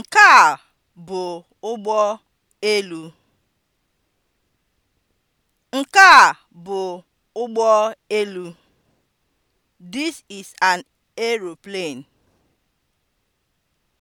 Nke a bụ ụgbọ elu. Nke a bụ ụgbọ elu. This is an aeroplane.